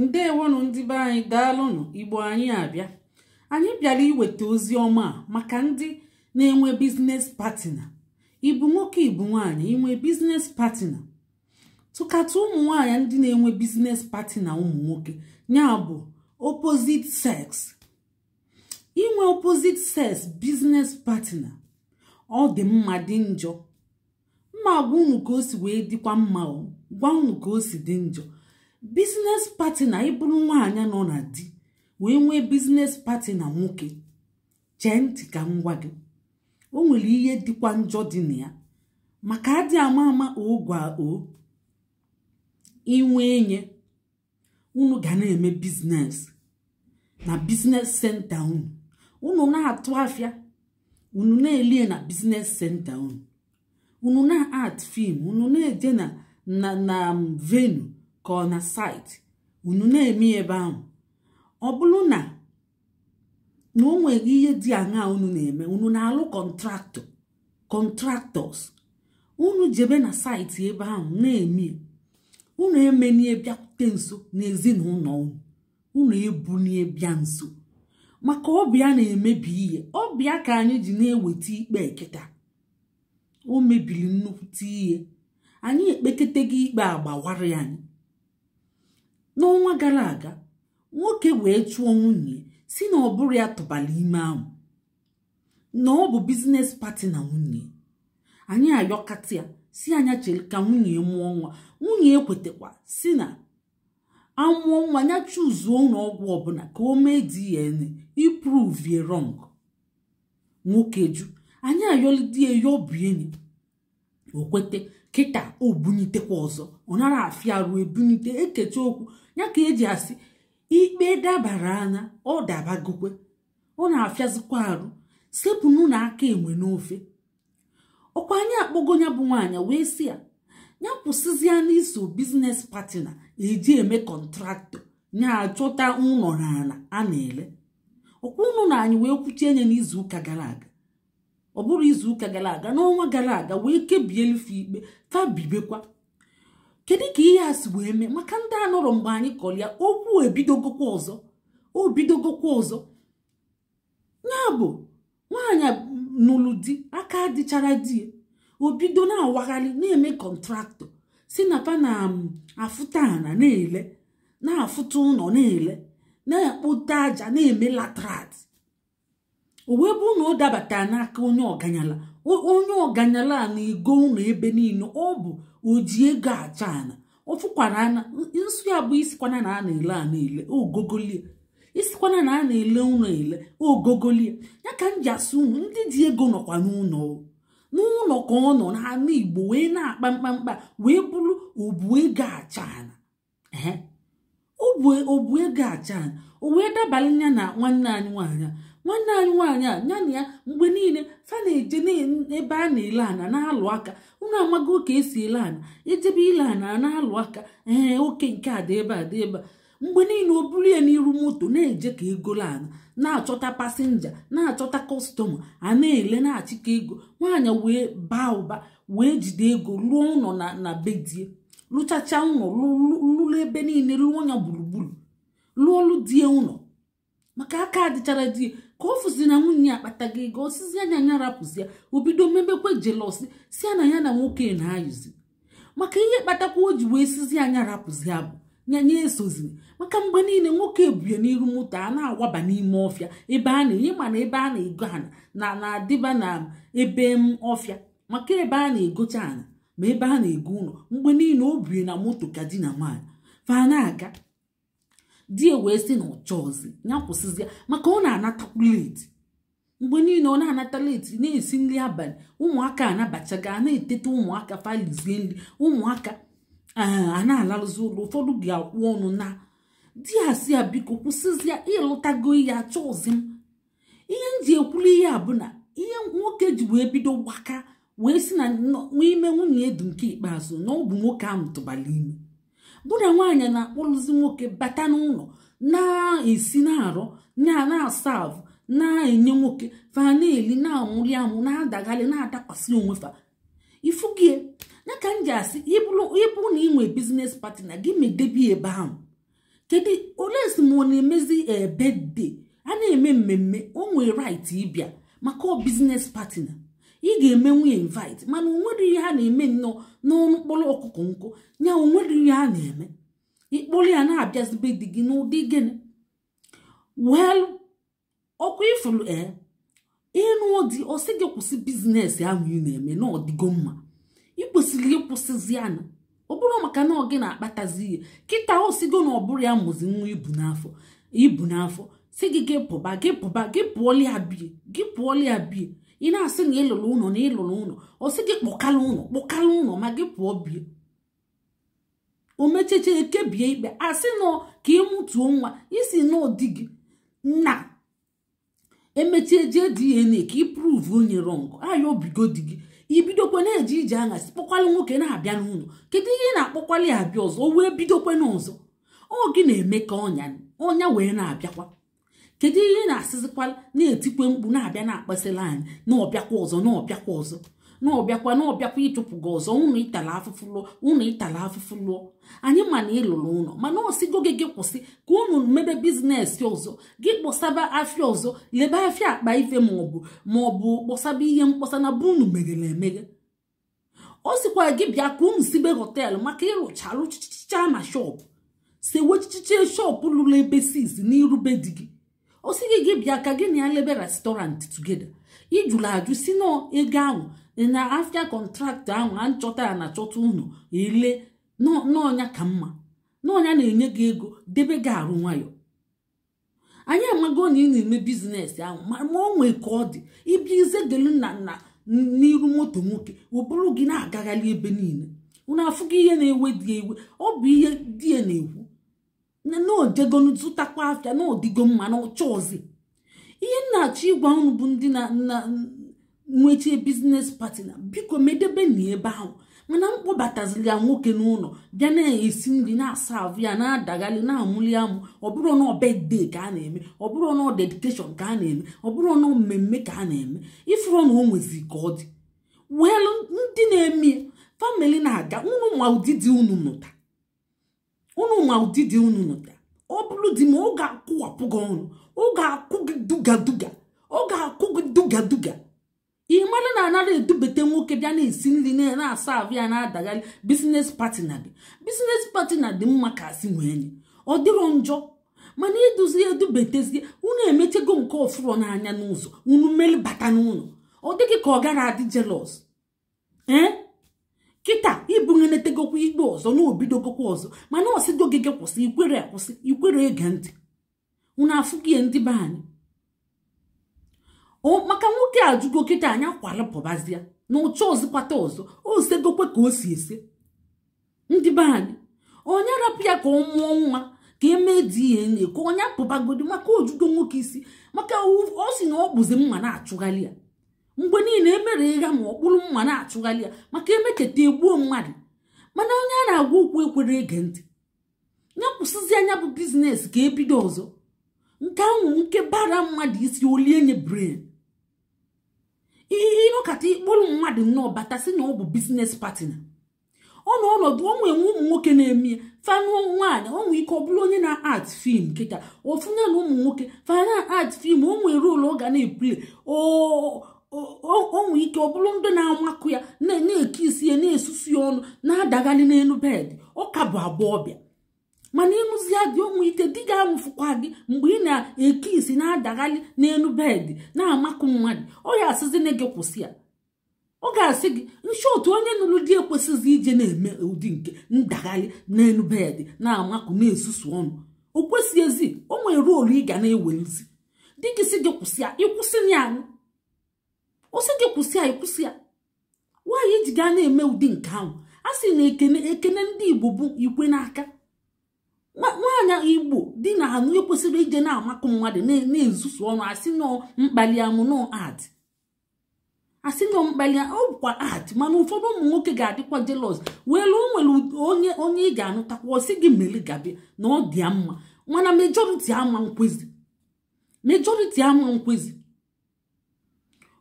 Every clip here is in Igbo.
ndewonụ ndị be anyị daalụnụ igbo anyị abịa anyị bịara iweta ozi ọma maka ndị na-enwe biznes patina ibu nwoke ibu nwanyị inwe biznes patina tụkata ụmụ nwaanyị ndị na-enwe biznes patina ụmụ nwoke ya bụ opposite sex inwe opposite sex biznes patina ọ dị mma dị njọ mma gwa unu ka si wee dịkwa mma gwa unu ka dị njọ bizines pati na ịbụrụ nwaanyị nọ na di wee nwee bizines pati na nwoke chee ntị ka m gwa gị o nwere ihe dịkwa njọ dị na ya maka adị ama ama ogwa o inwe enye unu ga na-eme bizines na bizines senta unu unu na-atụ afịa unu na-elie na bizines senta unu unu na-art fim unu na ede na na um, venu ka ọ na site unu na-eme ebe ahụ ọ bụrụ na na o nweghị ihe dị aṅaa unu na-eme unu na-alụ kọntraktọ kọntraktọs unu jebe na saịtị ebe ahụ na-eme unu emenye bịakwute nso na ezinụlọ unu unu ebunie bịa nso maka ọbịa na-emebi ihe ọbịa ka anyị ji na-eweta ikpe eketa o mebiri nnukwute ihe anyị ekpekete gị ikpe agbawara anyị n'ọnwa gara aga nwoke wee chụọ nwunye si na ọ bụrụ ya tụbara ime ahụ na ọ bụ biznes pati na nwunye anyị ayọkata ya si anya chere ka nwunye mụọ nwa nwunye ekwetekwa si na amụọ nwa ya chuzuo ọgwụ ọbụla ka o mee DNA ipruvie rọng nwoke ju anyị ayọlidie ya bụ enyi okwete kịta obunitekwa ọzọ ọ nara afịa ruo ebunite ekechi okwu ya ka eji asị ikpe dabara anya ọ dabagokwe ọ na-afịazikwa arụ sepụnụ na aka enwe n'ofe ọkwa anyị akpọgo ya bụ nwaanyị wee sị ya ya kwụsịzịa n'iso biznes patina eji eme kọntraktọ ya achọta ụlọ na ala a na-ele ọkwa ụnụ na anyị wee kwuchie nye n'izu ụka gara aga ọ bụrụ izu ụka gara aga n'ọnwa gara aga wee kebie elufe ikpe tabibekwa kedu ka ihe a si wee mee maka ndị a mgbe anyị kọrọ ya okwu ebidogokwa ọzọ obidogokwa ọzọ ya bụ nwaanyị nụrụ di aka dịchara di ya obido na-awagharị na-eme kọntraktọ si na pa na um, afụta ana na-ele na-afụta ụlọ na-ele na-akpụta aja na-eme latrat uwe wee bụ na dabata n'aka onye ọganyala onye ọganyala a na-ego ụlọ ebe niile ọ bụ oji ego acha ana ọfụkwara ana nsụ ya bụ isikwana na a na-ele a na-ele ogogolie isikwana na a na-ele ụlọ ele ogogolie ya ka m ji asụ ndị ji ego nọkwa n'ụlọ n'ụlọ ka ọ nọ n'ala igbo wee na-akpa mkpamkpa wee bụrụ obu ego acha ana obu ego acha ana o wee dabalị ya na nwanne anyị nwaanyị nwanne anyị nwaanyị a ya na ya mgbe niile fa na-eje n'ebe a na-ele ana na-alụ aka unu amago ka esi ele ana ejebe ile ana na-alụ aka ee oke nke a dị ebe a dị ebe a mgbe niile o buru ya n'iru moto na-eje ka egolo ana na-achọta pasinja na-achọta kọstọma a na-ele na-achịkọ ego nwaanyị wee baa ụba wee jide ego lụọ ụlọ na bedie lụchacha ụlọ lụrụ ebe niile lụọ ya gburugburu lụọ die ụlọ maka aka adịchara die ka ọ fụzi na nwunye ya akpata gị ego osizi anya anya rapụzi ya obido mmebekwe jelosi si ya na ya na nwoke na-ayụzi maka ihe kpatakwa o ji wee sizi anya rapụzi ya bụ nyanya esoziri maka mgbe niile nwoke ebue n'iru moto a na-awaba n'ime ọfịa ebe a na-enye mana ebe a na-ego ana na na-adịba na ebe m ọfịa maka ebe a na-egocha ana ma ebe a na-ego ụlọ mgbe niile o bie na moto ka di na nwaanyị fa na-aga di ya wee sị na ọchọzi ya kwụsịzi ya maka ọ na-anatakwu leti mgbe niile ọ na-anata leti na-esi nri abalị ụmụaka anabachaga na-eteta ụmụaka falizie nri ụmụaka eh, a na-alarụzi ụlọ ụfọdụ ga-akwụ ọnụ na di ya si ya biko kwụsịzịa ịlụtago ya achọzi m ihe m ji ekwuru ihe a na ihe nwoke ji wee bido gbaka wee si na n'ime nwunye edu nke ikpeazụ na ọ bụ nwoke ahụ tụbara ime mụ na nwaanyị na-akpụrụzi nwoke bata n'ụlọ na-esi na-arụ na asav na-enye nwoke fa na-eli na-amụli amụ na-adagharị na-adakwasị onwe fa ifugie ya ka m ji asị ịbụ na inwe biznes partner gị medebi ebe ahụ kedu ole esim ọ na-emezi ebede a na-eme mmemme o nwee right ịbịa maka biznes partner ị ga eme nwunye invite mana onwere ihe ha na-eme nnọọ n'ọnụ mkpụrụ ọkụkọ nkụ ya onwere ihe ha na-eme ịkpụrụ ya na-abịazibe di gị n'ụdị gịnị wel ọkụ ifuru e ịnụ dị ọsị gị kwụsị bizinesi ahụ ị na-eme na ọdịgo mma ị kwesịrị ịkwụsịzi anya ọ bụrụ maka na ọ na-akpatazi ihe kịta osigo na ọ bụrụ ya mụzi nwa ibu n'afọ ibu n'afọ si gị gị pụba gị pụba gị pụọla ya gị pụọla ya bie ị na-asị na ịlụrụ ụlọ na ịlụrụ ụlọ ọ sị gị kpọkala ụlọ kpọkala ụlọ ma gị pụọ bie omecheche ekebie ikpe asị nọ ka ị mụtuo nwa isi n'ụdị gị na emechie e jee DNA ka ị pruvu onye rọng aya obigo di gị ibidokwe na-eje ije aṅa kpọkwalị nwoke na-abịa n'ụlọ kedu ihe ị na ya abịa ọzọ o wee bidokwe n'ọzọ ọ gị na-eme ka ọnya ọnya wee na-abịakwa kedu ihe na-asịzikwala na-etikwe mkpu na-abịa na-akpasịla anyị na ọbịakwa ọzọ na ọbịakwa ọzọ na ọbịakwa na ọbịakwa ịchụpụ gị ọzọ ụnụ ịtala afụfụ lụọ ụnụ ịtala afụfụ lụọ anyị ma na ịlụrụ ụlọ mana na gị gị kwụsị ka ụnụ mebe bizinesi ọzọ gị kpọsaba afịa ọzọ lebe afịa akpa ife maọbụ maọbụ kpọsaba ihe mkpọsa na bụ unu meghere emeghe ọ sịkwa gị bịa ka ụnụ sibe họtelụ maka ịrụcha alụchichicha na shọpụ sewechichiche shọpụ lụrụ ebe sis n'irube di gị ọ gị gị bịa ka gị na ya lebe restọrantị tugede ijụrụ ajụ si na ego ahụ na afia kọntraktị ahụ a nchọta ya na chọta ụnụ ele n'ọnya ka mma n'ọnya na-enye gị ego debe gị arụ nwayọ anyị amago na ị na-eme bizinesi ahụ ma o nwee ka ọ dị ịbịa ize delu na nna n'iru moto nwoke ụbụrụ gị na-agagharị ebe niile unu afụgị ihe na-ewe dị ewe ọ bụ ihe di ya na-ekwu na zụtakwa afịa na mma na ọcha ọzi ihe nna-achọ ịgwa unu bụ ndị na nwechie biznes patina biko medebe na ebe ahụ mana mkpọbataziri ya nwoke n'ụlọ bịa na-esi nri na-asa ahụ ya na-adagharị na-amụli amụ bụrụ na ọbede ka a na-eme bụrụ na dedikeshọn ka a na-eme bụrụ na mmemme ka a na-eme ifuru na o nwezi ka ọ dị welu ndị na-eme famili na-aga unu ma ụdị dị unu mụta unu ma ụdị dị unu nụta ọ bụrụ di ma ọ ga-akwụwapụ gị ọnụ ọ ga-akwụ gị duga duga ọ ga-akwụ gị duga duga ị mara na anara edubete nwoke bịa na-esi nri na-asa ahụ ya na-adagharị bizines patina gị bizines patina dị mma ka asị nwee nye ọ dịrọ njọ mana iduzi edubetezie unu emechego nke ọfụrọ n'anya n'ụzọ unu mmeri bata n'ụlọ ọ dịghị ka ọ gara adị jelọs ee kịta ibunyenetagokwa ikpe ọzọ na obidogokwa ọzọ mana ọsịdo gị kwụsị ikwere akwụsị ikwere ege ntị unu afụgie ndị be anyị maka nwoke ajụgo kịta anyị akwalụpụbazia na ụcha ọzịkwata ọzọ osegokwe ka o si ese ndị be anyị onye rapụ ya ka ọ mụọ nwa ka eme di ka onye apụbagodi maka ojugo nwoke isi maka o si na ọ bụzi mma na-achụgharị ya mgbe niile emere ịgha ma ọkpụrụ mma na-achụgharị ya maka emeketa egbuo mmadụ mana onye a na-agwa okwu ekwere ege ntị ya kwụsịzi anya bụ bizinesi ka ebido ọzọ nke anwụ nke bara mmadụ isi olie nye bren ihe ịnọkata ịkpụrụ mmadụ nnọọ bata si na ọ bụ bizinesi patina ọ ọnọdụ ọ enwe ụmụ nwoke na-eme ya fanụọ nwaanyị ọ ike ọ bụrụ onye na-art fim nkịta ofu na ụmụ nwoke fana art fim o nwere rolu ọ ga na-epule onwe ike ọ bụrụ ndị na-amakụ ya na-eke isi ya na-esusu ya ọnụ na-adagharị n'elu bedị ọka bụ abụọ bịa mana ịnụzia gị onwe ike di gị anwụfụkwa gị mgbe ị na-eke isi na-adagharị n'elu bedị na-amakụ mmadụ ọ ya asịzina gị kwụsị ya ọ ga-asị gị nshi otu onye nụrụ di ekwesịghị ije na-eme ụdị nke ndagharị n'elu bedị na-amakụ na-esusu ọnụ o ezi o nwere olu ị ga na-ewelụzi di gị si gị kwụsị ya ịkwụsị ya ọsị gị kwụsị anyị kwụsị ya nwaanyị ji gaa na-eme ụdị nke ahụ a sị na ekene ekele ndị igbo bụ ikwe n'aka nwaanyị igbo dị na ha ekwesịrị ije na-amakụ mmadụ na-ezusu ọnụ asị mkpali amụ nọ ad asị nọ mkpali ọ ad mana ụfọdụ ụmụ nwoke ga-adịkwa jelọs wee nwere onye onye ị ga-anụtakwa ọsị gị mere gabi na ọ dị mma mana mejọriti ama nkwezi ama nkwezi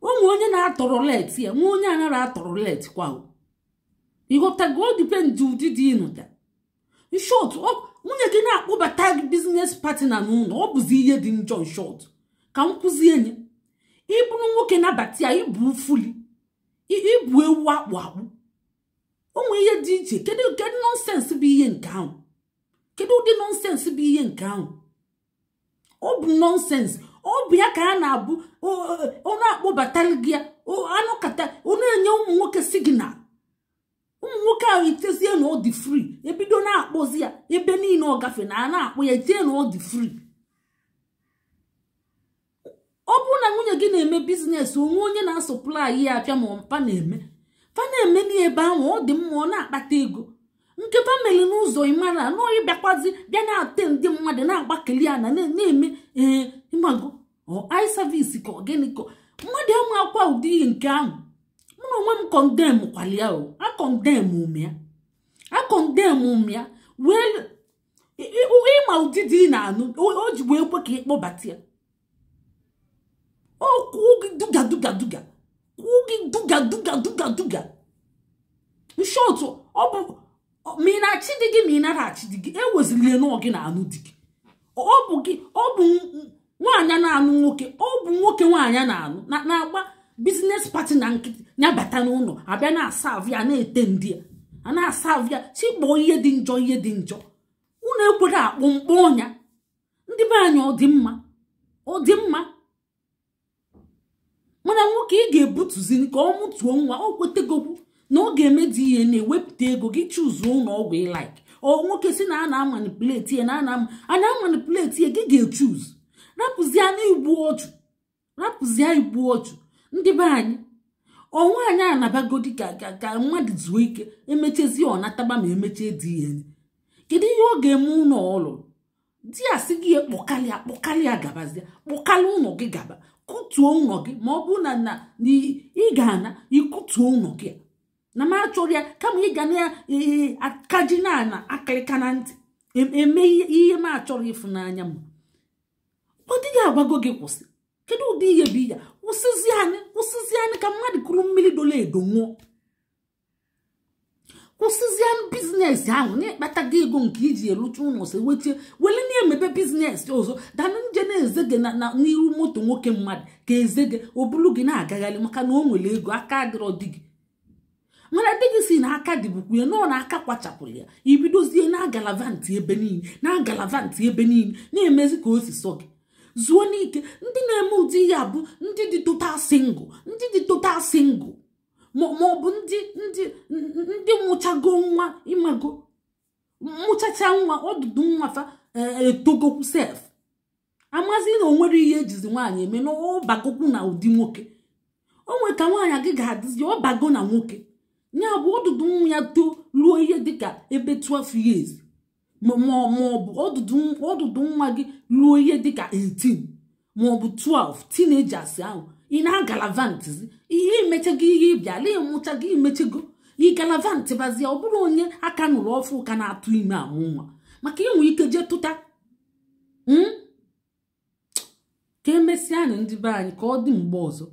onwe onye na-atọrọ let ya nwa onye anara atọrọ let kwa ịghọtago ụdị dị ịnụta shot nwunye gị na-akpọbata gị pati patina n'ụlọ ọ bụzi ihe dị njọ nshọt ka m kụzie nye ịbụrụ nwoke nabata ya ịbụ fuli ịbụ ewu akpụ akpụ onwe ihe dị iche kedu kedu nọnsensị bụ ihe nke ahụ kedu ụdị nọnsensị bụ ihe nke ahụ ọ bụ nọnsensị obi ya ka a na-abụ ọnụ akpọbatara gị ya anụkata onye enye ụmụ nwoke signal ụmụ nwoke ahụ itezie na ọ ebido na-akpọzi ya ebe niile ọ gafe na a na akpụ ya itinye na ọ ọ bụrụ na nwunye gị na-eme biznes onwe onye na-asọplai ya apịa ma mpa na-eme fa na-eme n'ihe ebe ahụ ọ dị mma ọ na-akpata ego nke famili n'ụzọ ịmara nọọ ịbịakwazi bịa na-ate ndị mmadụ na-agbakeli ya na na-eme ee eh, ịmago ọi sevisi ka ọgịnị ka mmadụ ama akwa ụdị nke ahụ mụ na onwe m kọndem kwalia o akọndem ume ya akọndem ume ya wee ịma ụdị dị na-anụ o ji wee kwe ka ịkpọbata ya o kwuo gị duga duga duga kwuo gị duga duga duga duga nshọtụ ọ bụ ma ị na-achị dị gị ma ị nara achị dị gị ewezilie n'ọ gị na anụ dị gị ọ bụ gị ọ bụ nwaanyị na-anụ nwoke ọ bụ nwoke nwaanyị na-anụ na-agba biznes pati na nkịtị nyabata n'ụlọ abịa na-asavụ ya na-ete ndị a na-asavụ ya chịkpọọ ihe dị njọ ihe dị njọ ụlọ ekwere akpụ mkpọ ọnya ndị be anyị ọ dị mma ọ dị mma mana nwoke ị ga ebutuzi ka ọ mụtuo nwa ọ kwetegokwu na ọ ga-eme ihe na-ewepụta ego gị chụzuo ụlọ ọgwụ ịlaik ọ nwoke si na a na-amanipuleti ya na a na-ama amanipuleti ya gị ga-echuz rapụzie rapụzie igbu ọchụ ndị be anyị ọnwa anyị anabagodi ga ka ga mmadụ zuo ike emechezi ọnataba ma emechie dị ya kedu ihe ọ ga-eme ụlọ ụlọ di ya sị gị kpọkalịa kpọkalịa gabazie kpọkalịa ụlọ gị gaba kụtuo ụlọ gị ma ọ bụrụ na na ị ga-ana ịkụtuo ụlọ gị na m achọrọ ya kama ị na-akaji na ana akịrịka na ntị eme e ihe m achọrọ ịfụ n'anya m ọ dịghị agwago gị kwụsị kedu ụdị ihe bụ ya kwụsịzi anyị kwụsịzi anyị ka mmadụ kụrụ mmiri dola edo nwụọ kwụsịzi anyị biznes ahụ na-ekpatago ego nke iji elucha ụlọ si wechie wele na-emebe biznes ọzọ danụ nje na-eze gị na n'iru moto nwoke mmadụ ka eze gị o bulu gị na-agagharị maka na o nwere ego aka adịrọ dị gị mana dị gị si na aka dịbukwuye nọọ na aka kwachapụrụ ya ibidozie na agalavanti ebe niile na agalavanti ebe niile na-emezi ka o si sọ gị zuo n'ike ndị na-eme ụdị ya bụ ndị dị total single ndị dị total single ma ọ bụ ndị ndị ndị mụchago nwa ịmago mụchacha nwa ọdụdụ nwa fa etogokwu e, sef amazi na onwere ihe ejizi nwaanyị eme na ọbagokwu na ụdị nwoke onwe ka nwaanyị gị ga-adịzi ọbago na nwoke ya bụ ọdụdụ nwa ya too ruo ihe dịka ebe 12 years maọbụ ọdụdụ nwa gị ruo ihe dịka 18 maọbụ 12 teenagers ahụ ị na-agalavantizi ihe imechego ihe ịbịala ịmụchago imechego ị galavant bazie ọ bụrụ onye aka nụrụ ọfụ ụka na-atụ ime amụ nwa maka inwe ike jee tụta hmm? ka emesịa anyị ndị be anyị ka ọ dị mgbe ọzọ